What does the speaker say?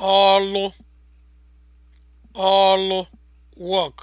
ọlụ ọlụ work